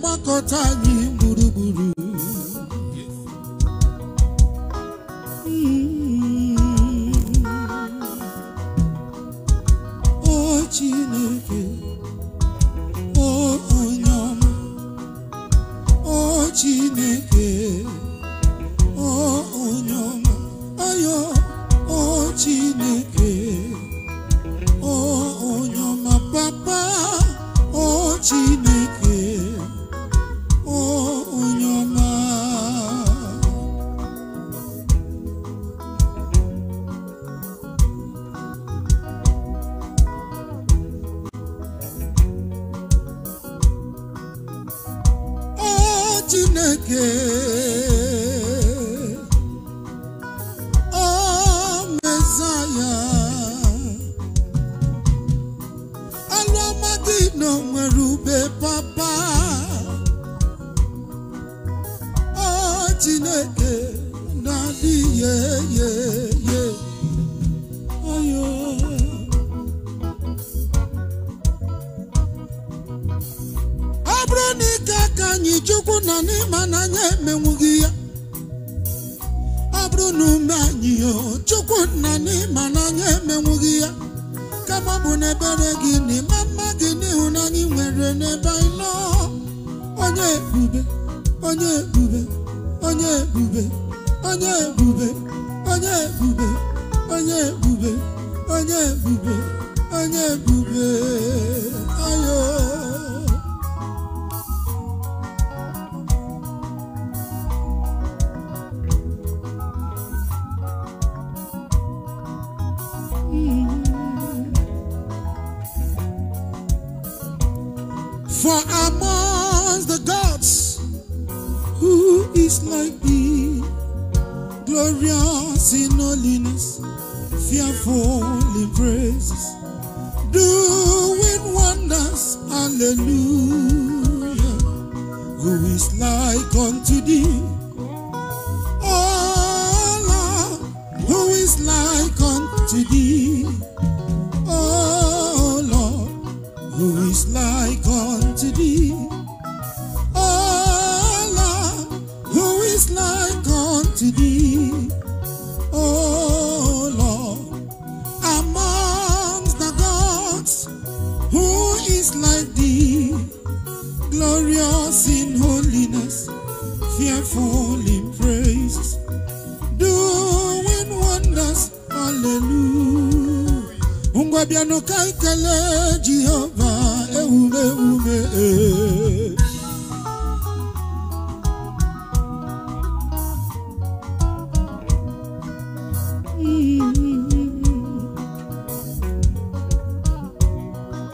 gbakọta anyị gburugburu hmm. o Chineke o onye ọma o Chineke chineke o mesaya alụ ọma na nwere ube papa o chineke na-adịghị bụrụ na ike aka anyị chukwu na n'ịma na anya emenwughị ya ọ bụrụ na ume anyị chukwu na n'ịma na anya emenwughị ya kama bụ n'ebere gị na ịma mma gị n'ịhụnanya nwere n'ebe anyị nọ onye ebube onye ebube onye ebube onye ebube onye ebube onye ebube onye ebube onye ebube ayo For the gods, who is like thee? Glorious in holiness, fearful in praises, doing wonders, hallelujah. Who is like unto thee? Oh, Lord, who is like unto thee? glorious in holiness, fearful in praise, doing wonders, hallelujah. Ungwa eh. mm-hmm. biano kaikele Jehovah, eume ume.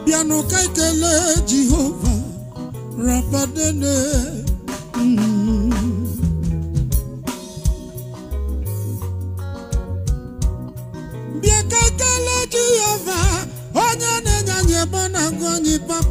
Biano kaikele Jehovah rabadene hmm. bịa ka ekele jehova onye na-enye anyị ebe